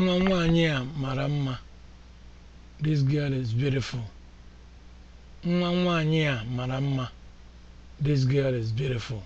nwa nwaanyị a mara mma this girl is nwa nwaanyị a mara mma this girl is beautiful